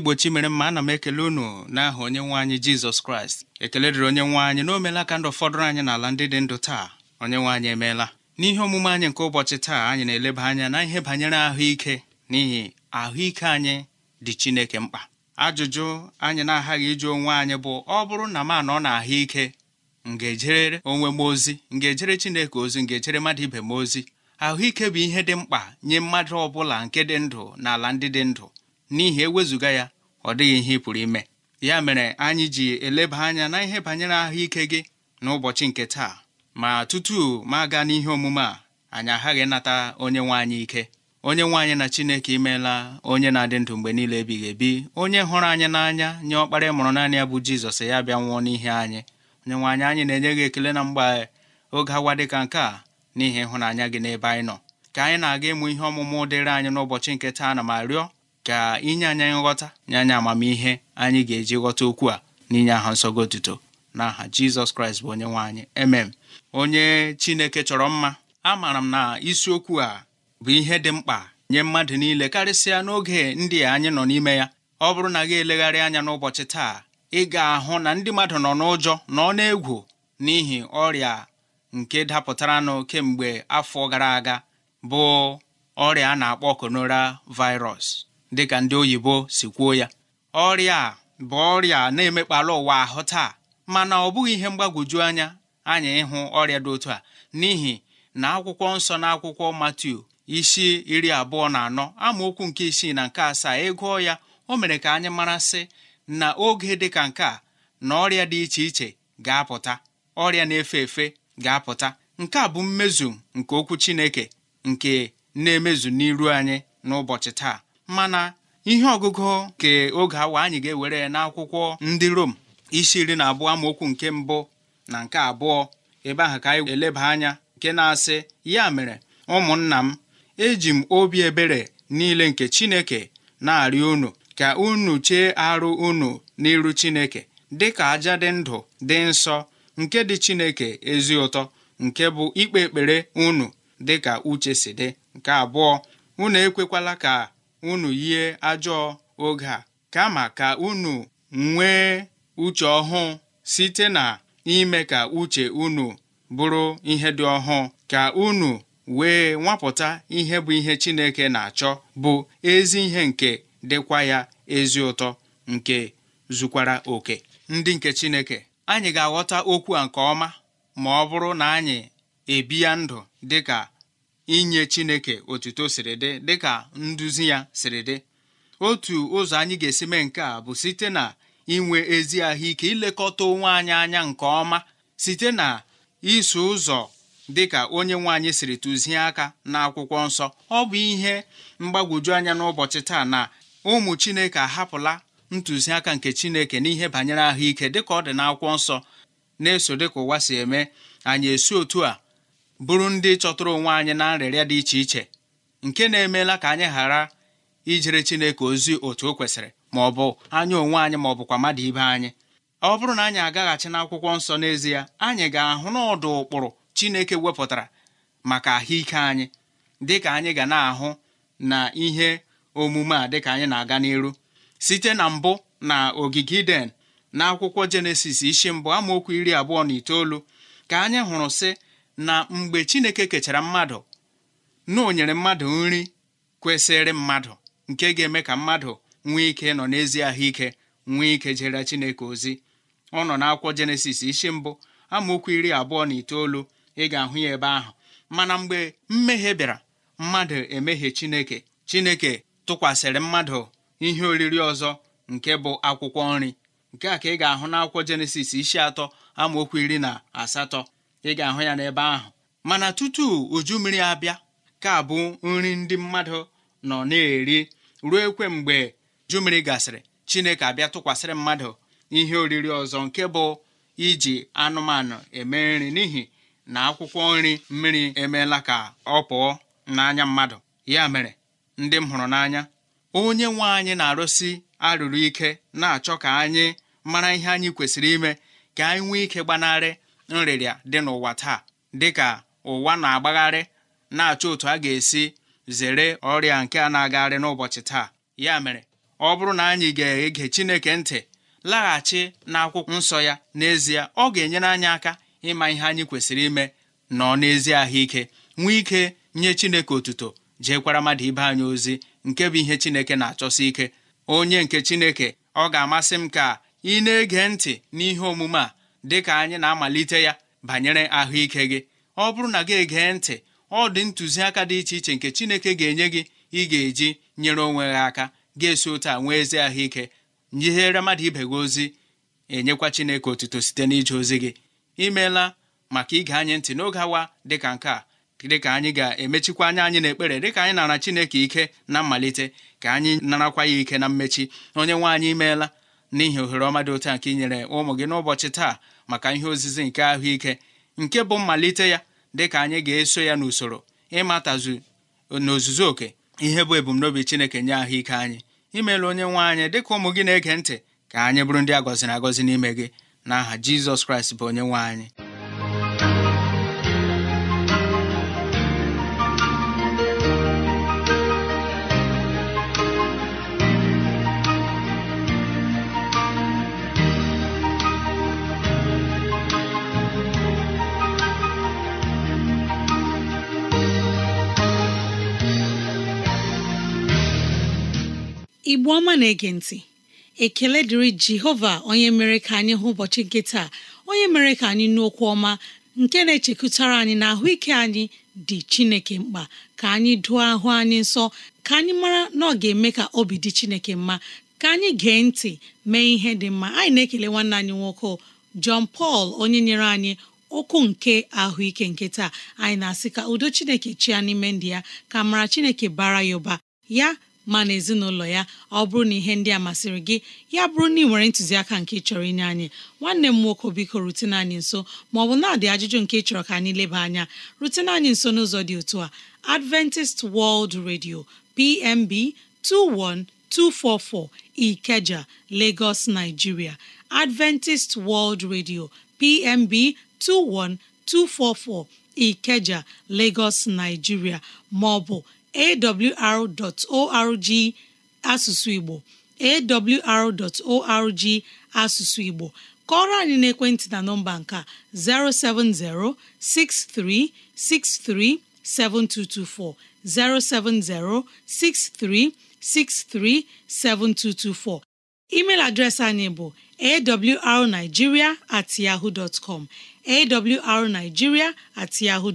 igbo chimere mma ana m ekele unu n'aha onye nwe anyị jizọs kraịst ekele dịrị onye nwe anyị na omela ka ndụ fọdụrụ anyị n'ala ndị dị ndụ taa onye nwe anyị emeela n'ihe omume anyị nke ụbọchị taa anyị na-eleba anya na ihe banyere ahụike n'ihi ahụike anyị dị chineke mkpa ajụjụ anyị na-aghaghị ịjụ onwe anyị bụ ọ bụrụ na m anọ na ahụike m ga-ejere onwe m ozi m ga-ejere chineke ozi m ga-ejere mmadụ ibe m ozi ahụike bụ ihe dị mkpa nye mmadụ ọ bụla nke dị ndụ na ala ndị dị ndụ n'ihi ewezụga ya ọ dịghị ihe ị pụrụ ime ya mere anyị ji eleba anya na ihe banyere ahụike gị n'ụbọchị nke taa ma tutu ma aga n'ihe omume a anyị aghaghị nata onye nwe anyị ike onye nwe anyị na chineke imeela onye na-adị ndụ mgbe niile ebighị ebi onye hụrụ anyị n'anya nye ọkpara mụrụ naanị ya bụ jizọs ya bịa nwụọ n'ihe anyị onye nwe anyị anyị na-enye gị ekele na mgbe oge awa dịka nke a n'ihi ịhụnanya gị n'ebe anyị nọ ka anyị na-aga ịmụ ihe ọmụmụ dịrị anyị n'ụbọchị nke taa na ma rịọ ka inye anya nghọta nye anya amamihe anyị ga-eji ghọta okwu a n'inye aha nsọgo otuto n'aha Jizọs Kraịst bụ onye nwe anyị emem onye Chineke chọrọ mma amaara m na isiokwu a bụ ihe dị mkpa nye mmadụ niile karịsịa n'oge ndị anyị nọ n'ime ya ọ bụrụ na gị elegharị anya n'ụbọchị taa ị ga-ahụ na ndị mmadụ nọ n'ụjọ nọ n'egwu n'ihi ọrịa nke dapụtaranụ kemgbe afọ gara aga bụ ọrịa a na-akpọ konora virus dịka ndị oyibo si kwuo ya ọrịa a bụ ọrịa na-emekpalụ ụwa ahụ taa mana ọ bụghị ihe mgbagwoju anya anyị ịhụ ọrịa dị otu a n'ihi na akwụkwọ nsọ na akwụkwọ Matiu isi iri abụọ na anọ amaokwu nke isii na nke asaa ịgụọ e ya o mere ka anyị marasị na oge dị ka nke a na ọrịa dị iche iche ga-apụta ọrịa na-efe efe ga-apụta nke a bụ mmezu nke okwu Chineke nke na-emezu n'iru anyị n'ụbọchị taa mana ihe ọgụgụ nke oge awa anyị ga-ewere n'akwụkwọ ndị Rom isi iri na abụọ amaokwu nke mbụ na nke abụọ ebe ahụ ka anyị eleba anya nke na-asị ya mere ụmụnna m eji m obi ebere niile nke Chineke na-arịọ unu ka unu chee arụ unu n'iru Chineke dị ka aja dị ndụ dị nsọ nke dị Chineke ezi ụtọ nke bụ ikpe ekpere unu dị ka uche si dị nke abụọ unu ekwekwala ka unu yie ajọọ oge a kama ka unu nwee uche ọhụụ site na ime ka uche unu bụrụ ihe dị ọhụụ ka unu wee nwapụta ihe bụ ihe Chineke na-achọ bụ ezi ihe nke dịkwa ya ezi ụtọ nke zukwara oke ndị nke Chineke anyị ga-aghọta okwu a nke ọma ma ọ bụrụ na anyị ebi ya ndụ dịka inye Chineke otuto siri dị dịka nduzi ya siri dị otu ụzọ anyị ga-esi mee nke a bụ site na inwe ezi ahụike ilekọta onwe anyị anya nke ọma site na iso ụzọ dịka onye nwe siri tụzie aka n'akwụkwọ nsọ ọ bụ ihe mgbagwoju anya n'ụbọchị taa na ụmụ Chineke ahapụla ntụziaka nke Chineke n'ihe banyere ahụike dịka ọ dị n'akwụkwọ nsọ na-eso dịka ụwa si eme anyị esi otu a bụrụ ndị chọtụrụ onwe anyị na nrịrịa dị iche iche nke na-emeela ka anyị ghara ijere Chineke ozi otu o kwesịrị ma ọ bụ onwe anyị ma ọ bụkwa mmadụ ibe anyị ọ bụrụ na anyị agaghachi n'akwụkwọ nsọ n'ezie anyị ga-ahụ ọdụ ụkpụrụ Chineke wepụtara maka ahụike anyị dịka anyị ga na-ahụ na ihe omume a dịka anyị na-aga n'iru site na mbụ na ogige Iden na akwụkwọ Jenesis isi mbụ amaokwu iri abụọ na itoolu ka anyị hụrụ sị na mgbe Chineke kechara mmadụ na o nyere mmadụ nri kwesịrị mmadụ nke ga-eme ka mmadụ nwee ike nọ n'ezi ahụike nwee ike jere Chineke ozi ọ nọ n'akwụkwọ Jenesis isi mbụ amaokwu iri abụọ na itoolu ị ga-ahụ ya ebe ahụ mana mgbe mmehie bịara mmadụ emehie Chineke Chineke tụkwasịrị mmadụ ihe oriri ọzọ nke bụ akwụkwọ nri nke a ka ị ga-ahụ n'akwụkwọ Jenesis isi atọ amaokwu iri na asatọ ị ga-ahụ ya n'ebe ahụ mana tutu uju mmiri abịa ka bụ nri ndị mmadụ nọ na-eri ruo ekwe mgbe uju mmiri gasịrị chineke abịa tụkwasịrị mmadụ ihe oriri ọzọ nke bụ iji anụmanụ eme nri n'ihi na akwụkwọ nri mmiri emeela ka ọ pụọ n'anya mmadụ ya mere ndị m hụrụ n'anya onye nwe anyị na-arụsi arụrụ ike na-achọ ka anyị mara ihe anyị kwesịrị ime ka anyị nwee ike gbanarị nrịrịa dị n'ụwa taa dịka ụwa na-agbagharị na-achọ otu a ga-esi zere ọrịa nke a na-agagharị n'ụbọchị taa ya mere ọ bụrụ na anyị ga-ege Chineke ntị laghachi n'akwụkwọ nsọ ya n'ezie ọ ga-enyere anyị aka ịma ihe anyị kwesịrị ime nọ n'ezi ahụike nwee ike nye Chineke otuto jeekwara mmadụ ibe anyị ozi nke bụ ihe Chineke na-achọsi ike onye nke Chineke ọ ga-amasị m ka ị na-ege ntị n'ihe omume a dị ka anyị na-amalite ya banyere ahụike gị ọ bụrụ na gị egee ntị ọ dị ntụziaka dị iche iche nke Chineke ga-enye gị ị ga-eji nyere onwe gị aka ga-esi otu a nwee ezi ahụike nyihere mmadụ ibe gị ozi enyekwa Chineke otuto site n'ije ozi gị imeela maka ige anyị ntị n'oge awa dịka nke a dịka anyị ga-emechikwa anya anyị n'ekpere dịka anyị nara Chineke ike na mmalite ka anyị narakwa ya ike na mmechi onye nwe anyị imeela n'ihi ohere ọma dị otu a nke inyere ụmụ gị n'ụbọchị taa maka ihe ozizi nke ahụike nke bụ mmalite ya dị ka anyị ga-eso ya n'usoro ịmatazu n'ozuzu oke ihe bụ ebumnobi Chineke nye ahụike anyị imeela onye nwe anyị dị ka ụmụ gị na-ege ntị ka anyị bụrụ ndị agọzi na agọzi n'ime gị n'aha Jizọs Kraịst bụ onye nwe anyị igbo ọma na-ege ntị ekele dịrị jehova onye mere ka anyị hụ ụbọchị nke taa onye mere ka anyị nụ okwu ọma nke na-echekụtara anyị na ahụike anyị dị chineke mkpa ka anyị dụọ ahụ anyị nsọ ka anyị mara na ọ ga-eme ka obi dị chineke mma ka anyị gee ntị mee ihe dị mma anyị na-ekele nwanne anyị nwoke John pal onye nyere anyị okwu nke ahụike nke taa anyị na-asị ka udo chineke chia n'ime ndị ya ka mara chineke bara ya ụba ya ma na ezinụlọ ya ọ bụrụ na ihe ndị a masịrị gị ya bụrụ na ị nwere ntụziaka nke chọrọ inye anyị nwanne m nwoke biko rutene anyị nso ma ọ bụ na-adị ajụjụ nke chọrọ ka anyị leba anya rutene anyị nso n'ụzọ dị otu a Adventist World Radio PMB 21244 Ikeja Lagos Nigeria Adventist World Radio PMB 21244 Ikeja Lagos Nigeria ma ọ bụ awr.org asụsụ Igbo awr.org asụsụ Igbo kọrọ anyị n'ekwentị na nọmba nka 070 6363 7224 070 6363 7224 email adreesị anyị bụ awrnigeria at yahoo awrnigeria at yahoo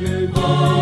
Yegor.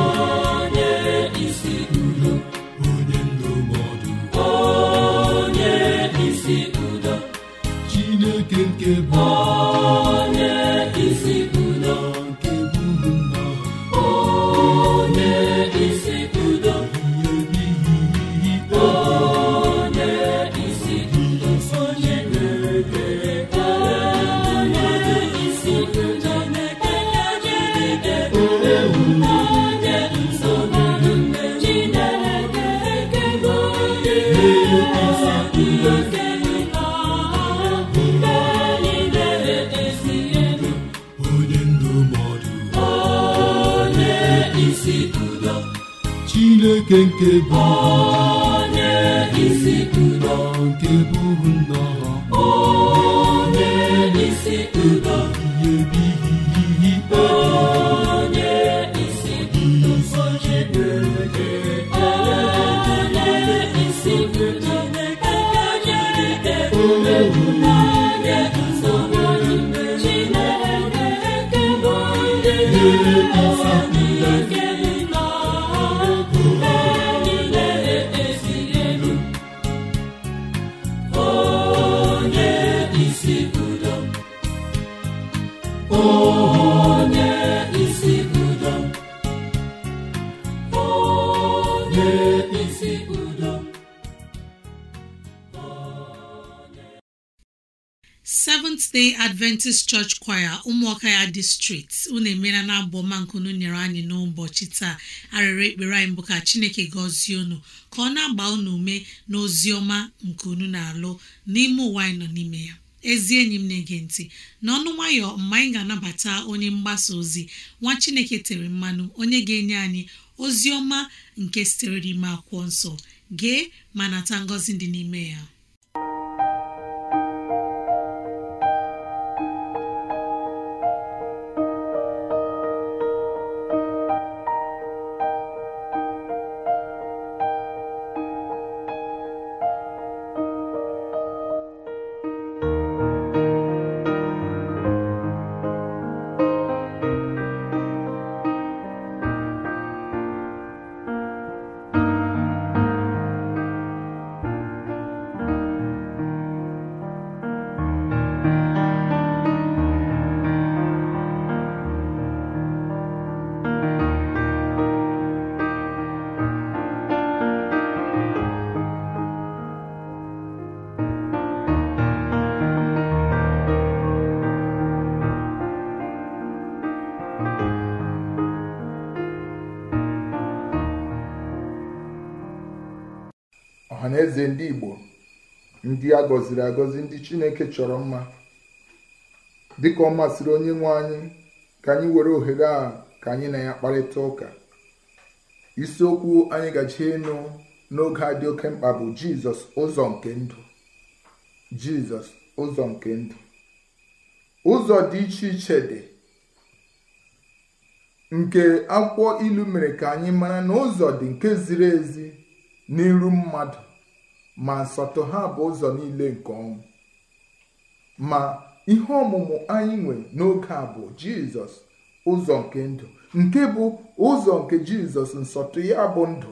adventist church choir ụmụaka ya distrikti unu emela na abụ ọma nkunu nyere anyị n'ụbọchị taa arịrị ekpere anyị bụ ka chineke gọzie unu ka ọ na-agba unu ume na ozi ọma nke unu na-alụ n'ime ụwa anyị nọ n'ime ya ezi enyi m na-ege ntị n'ọnụ nwayọ mgbe anyị ga-anabata onye mgbasa ozi nwa chineke tere mmanụ onye ga-enye anyị ozi ọma nke sitere n'ime akwụkwọ nsọ gee ma nata ngọzi dị n'ime ya eze ndị Igbo ndị a gọziri agọzi ndị Chineke chọrọ mma dịka ọ masịrị onye nwe anyị ka anyị were ohere a ka anyị na ya kparịta ụka isiokwu anyị gaji ịnụ n'oge a dị oke mkpa bụ Jizọs ụzọ nke ndụ Jizọs ụzọ nke ndụ ụzọ dị iche iche dị nke akwụkwọ ilu mere ka anyị mara na ụzọ dị nke ziri ezi n'iru mmadụ ma nsọtụ ha bụ ụzọ niile nke ọnwụ ma ihe ọmụmụ anyị nwe n'oge a bụ jizọs ụzọ nke ndụ nke bụ ụzọ nke jizọs nsọtụ ya bụ ndụ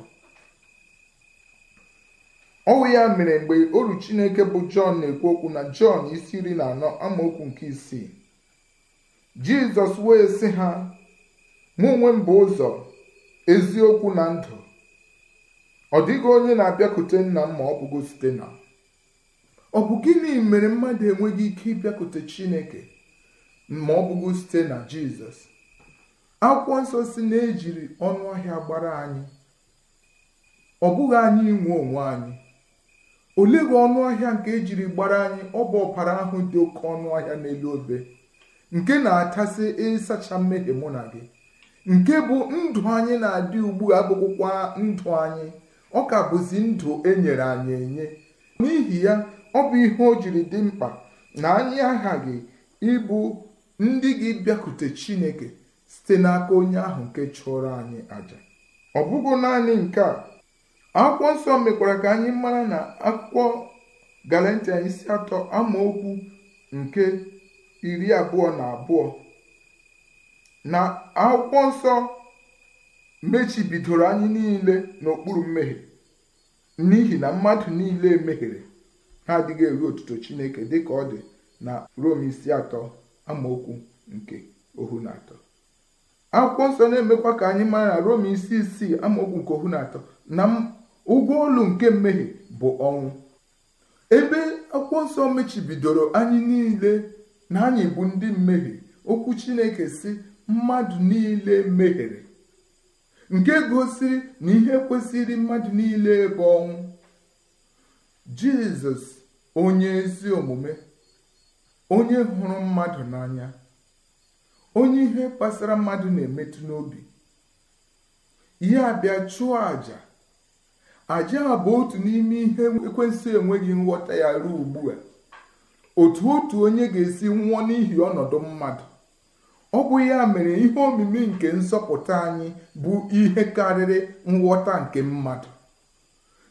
ọnwụ ya mere mgbe oru chineke bụ jọn na-ekwu okwu na jọn isi iri na anọ amaokwu nke isii jizọs wee sị ha mụ onwe m bụ ụzọ eziokwu na ndụ ọ dịghị onye na-abịakute nna m ma ọ bụgo site na ọ bụ gịnị mere mmadụ enweghị ike ịbịakute chineke ma ọ bụgo site na jizọs akwụkwọ nsọ si na-ejiri ọnụ ahịa gbara anyị ọ bụghị anyị inwe onwe anyị oleghị ọnụ ahịa nke ejiri gbara anyị ọ bụ ọbara ahụ dị oke ọnụ ahịa n'elu obe nke na-atasị ịsacha mmehie mụ na gị nke bụ ndụ anyị na-adị ugbu a abụkwụkwa ndụ anyị ọ ka bụzi ndụ e nyere anyị enye n'ihi ya ọ bụ ihe o jiri dị mkpa na anyị aghaghị ịbụ ndị gị bịakute chineke site n'aka onye ahụ nke chụrụ anyị aja ọ bụghị naanị nke a akwụkwọ nsọ mekwara ka anyị mara na akwụkwọ galantia isi atọ amaokwu nke iri abụọ na abụọ na akwụkwọ nsọ mechibidoro anyị niile n'okpuru mmehie n'ihi na mmadụ niile mehiere ha adịghị eru otuto chineke dịka ọ dị na rom isi atọ amaokwu nke ohu na atọ akwụkwọ nsọ na-emekwa ka anyị mara na rom isi isii amaokwu nke ohu na atọ na ụgwọ olu nke mmehie bụ ọnwụ ebe akwụkwọ nsọ mechibidoro anyị niile na anyị bụ ndị mmehie okwu chineke si mmadụ niile mehiere nke gosiri na ihe kwesịrị mmadụ niile bụ ọnwụ jizọs onye ezi omume onye hụrụ mmadụ n'anya onye ihe kpasara mmadụ na-emetụ n'obi ya bịa chụọ àjà àjà a bụ otu n'ime ihe ekwensụ enweghị nghọta ya ruo ugbu a otu otu onye ga-esi nwụọ n'ihi ọnọdụ mmadụ ọ bụ ya mere ihe omimi nke nsọpụta anyị bụ ihe karịrị nghọta nke mmadụ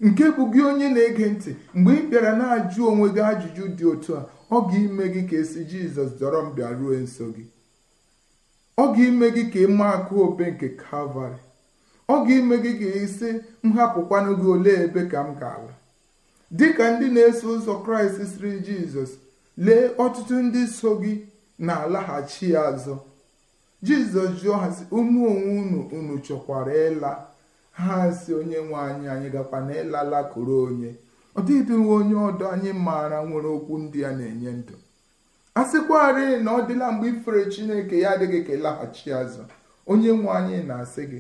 nke bụ gị onye na-ege ntị mgbe ị bịara na-ajụ onwe gị ajụjụ dị otu a ọ ga-ime gị ka esi jizọs dọrọ m bịa ruo nso gị ọ ga ime gị ka ịma akụ obe nke kalvarị ọ ga ime gị ka isi m hapụkwanụ gị olee ebe ka m ga-ala ka ndị na-eso ụzọ kraịst siri jizọs lee ọtụtụ ndị so gị na-alaghachi azụ jizọs jụọ ha ụmụ onwe unu unu chọkwara ịla ha si onye nwe anyị anyị gakwa na ịlala koro onye ọ dịghịdịwe onye ọdọ anyị maara nwere okwu ndị a na-enye ndụ a sịkwarị na ọ dịla mgbe ifere chineke ya adịghị ka ịlaghachi azụ onye nwe anyị na-asị gị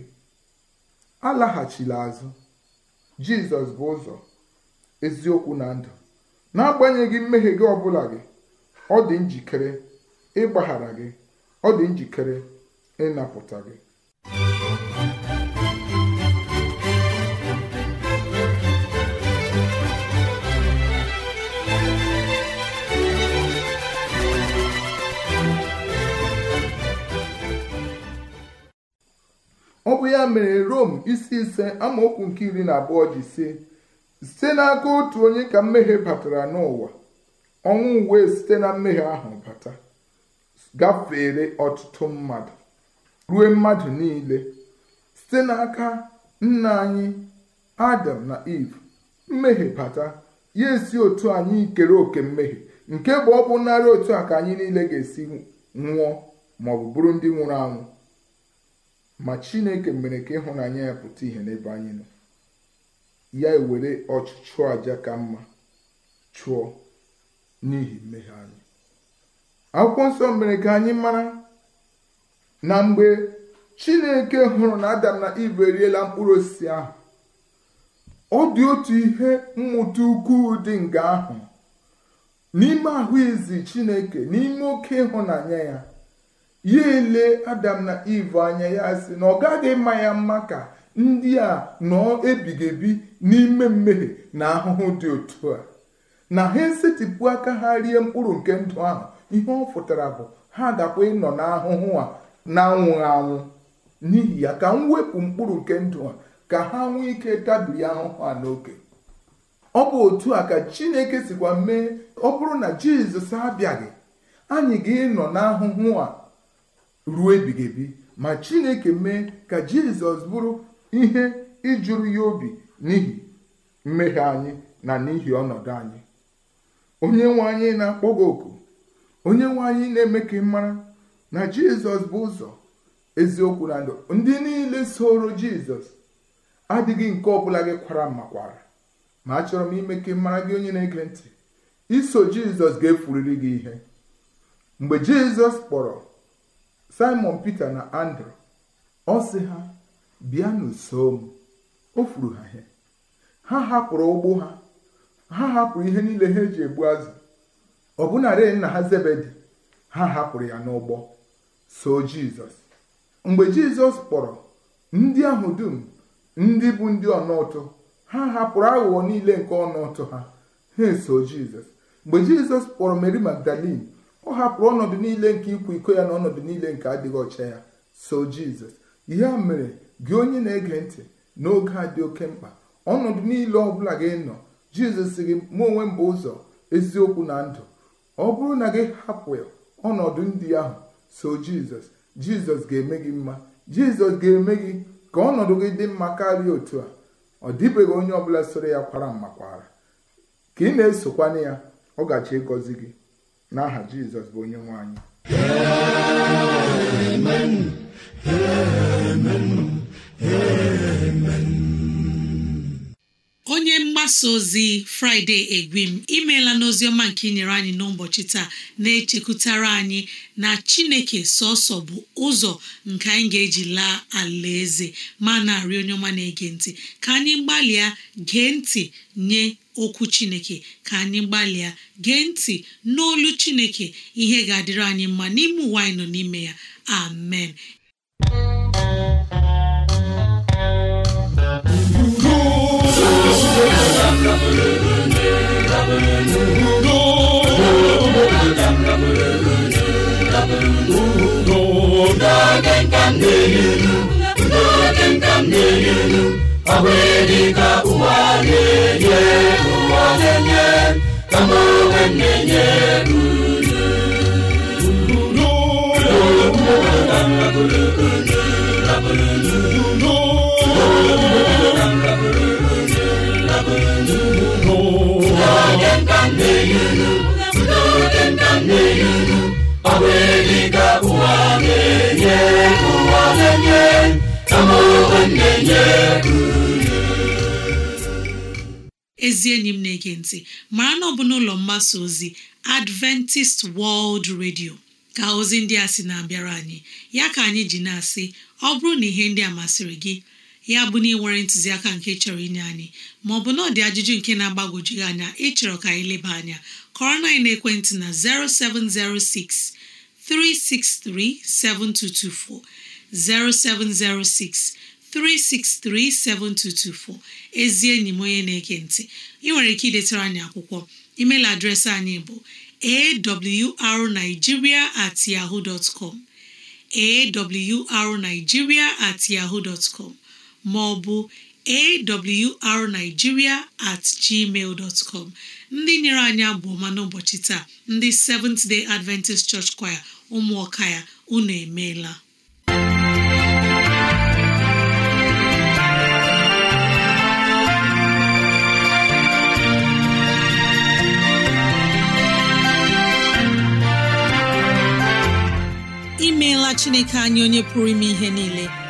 alaghachila azụ jizọs bụ ụzọ eziokwu na ndụ na-agbanye agbanyeghị mmehie gị ọbụla gị ọ dị njikere ịgbaghara gị ọ dị njikere ịnapụta gị ọ bụ ya mere Rom isi ise amaokwu nke iri na abụọ ji si site n'aka otu onye ka mmehie batara n'ụwa ọnwụ wee site na mmehie ahụ bata gafere ọtụtụ mmadụ ruo mmadụ niile site n'aka nna anyị Adam na Eve mmehie bata ya esi otu anyị ikere oke mmehie nke bụ ọ bụ narị otu a ka anyị niile ga-esi nwụọ ma ọ bụ bụrụ ndị nwụrụ anwụ ma Chineke mere ka ịhụnanya ya pụta ihe n'ebe anyị nọ ya ewere ọchịchọ aja ka mma chụọ n'ihi mmehie anyị akwụkwọ nsọ mere ka anyị mara na mgbe chineke hụrụ na adam na iv eriela mkpụrụ osisi ahụ ọ dị otu ihe mmụta ukwuu dị nga ahụ n'ime ahụ izi chineke n'ime oke ịhụnanya ya ya ele adam na iv anya ya si na ọ gaghị mma ya mma ka ndị a nọ ebigebi n'ime mmehie na ahụhụ dị otu a na ha esetipụ aka ha rie mkpụrụ nke ndụ ahụ ihe ọ pụtara bụ ha dakwa ịnọ n'ahụhụ a na anwụ anwụ n'ihi ya ka m wepụ mkpụrụ nke ndụ ha ka ha nwee ike tabiri ahụhụ a n'oke ọ bụ otu a ka chineke sikwa mee ọ bụrụ na jizọs abịaghị anyị ga-ịnọ n'ahụhụ a ruo ebighị ma chineke mee ka jizọs bụrụ ihe ijuru ya obi n'ihi mmehie anyị na n'ihi ọnọdụ anyị onye nwe anyị na-akpọ oku onye nwe anyị na-eme ka ị mara na jizọs bụ ụzọ eziokwu na ndụ ndị niile soro jizọs adịghị nke ọbụla gị kwara makwara ma achọrọ m ime ka mara gị onye na-ege ntị iso jizọs ga-efuriri gị ihe mgbe jizọs kpọrọ simon peter na andrew ọ sị ha bịa n'uso m o furu ha ihe ha hapụrụ ụgbọ ha ha hapụrụ ihe niile ha eji egbu azụ ọbụnarị nna ha zebedi ha hapụrụ ya n'ụgbọ so jizọs mgbe jizọs kpọrọ ndị ahụ dum ndị bụ ndị ọnụụtụ ha hapụrụ aghụghọ niile nke ọnụụtụ ha ha eso jizọs mgbe jizọs kpọrọ mary magdalin ọ hapụrụ ọnọdụ niile nke ịkwa iko ya na ọnọdụ niile nke adịghị ọcha ya so jizọs ihe a mere gị onye na-ege ntị n'oge a dị oke mkpa ọnọdụ niile ọ bụla gị nọ jizọs gị mụ onwe m bụ ụzọ eziokwu na ndụ ọ bụrụ na gị hapụ ọnọdụ ndị ahụ so jizọs jizọs ga-eme gị mma jizọs ga-eme gị ka ọnọdụ gị dị mma karịa otu a ọ dịbeghị onye ọbụla soro ya kwara mma mmakwara ka ị na-esokwana ya ọ gachi ịgọzi gị n'aha jizọs bụ onye nwe anyị onye mgbasa ozi fraịde egwim imeela n'oziọma nke inyere anyị n'ụbọchị taa na-echekwutara anyị na chineke sọsọ bụ ụzọ nke anyị ga-eji laa ala eze ma na-arị onye ọma na-ege ntị ka anyị gbalịa gee ntị nye okwu chineke ka anyị gbalịa gee ntị n'olu chineke ihe ga-adịrị anyị mma n'ime ụwa anyị nọ n'ime ya amen n'oge nka na-elu n'oge nka m na-elu ezi enyi m na-ege ntị mara na ọ bụ n'ụlọ mgbasa ozi Adventist World Radio ka ozi ndị a sị na-abịara anyị ya ka anyị ji na-asị ọ bụrụ na ihe ndị a masịrị gị ya bụ na ị nwere ntụziaka nke chọrọ inye anyị maọbụ na ọ dị ajụjụ nke na-agbagwoju anya anya ịchọrọ ka anyị leba anya kọrọ na ekwentị na 0706 363 7224 0706 363-7224 ezi enyi m onye na-ege ntị ị nwere ike idetara anyị akwụkwọ email adreesị anyị bụ arigiria at yahoo dot com at yahoo dot com ma ọ bụ awrnigeria at gmail dot com ndị nyere anyị abụ ọma n'ụbọchị taa ndị Seventh Day Adventist Church Choir ụmụọka ya unu emeela imeela Chineke anya onye pụrụ ime ihe niile